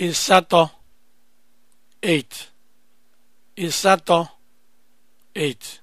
Il sato 8. Il sato 8.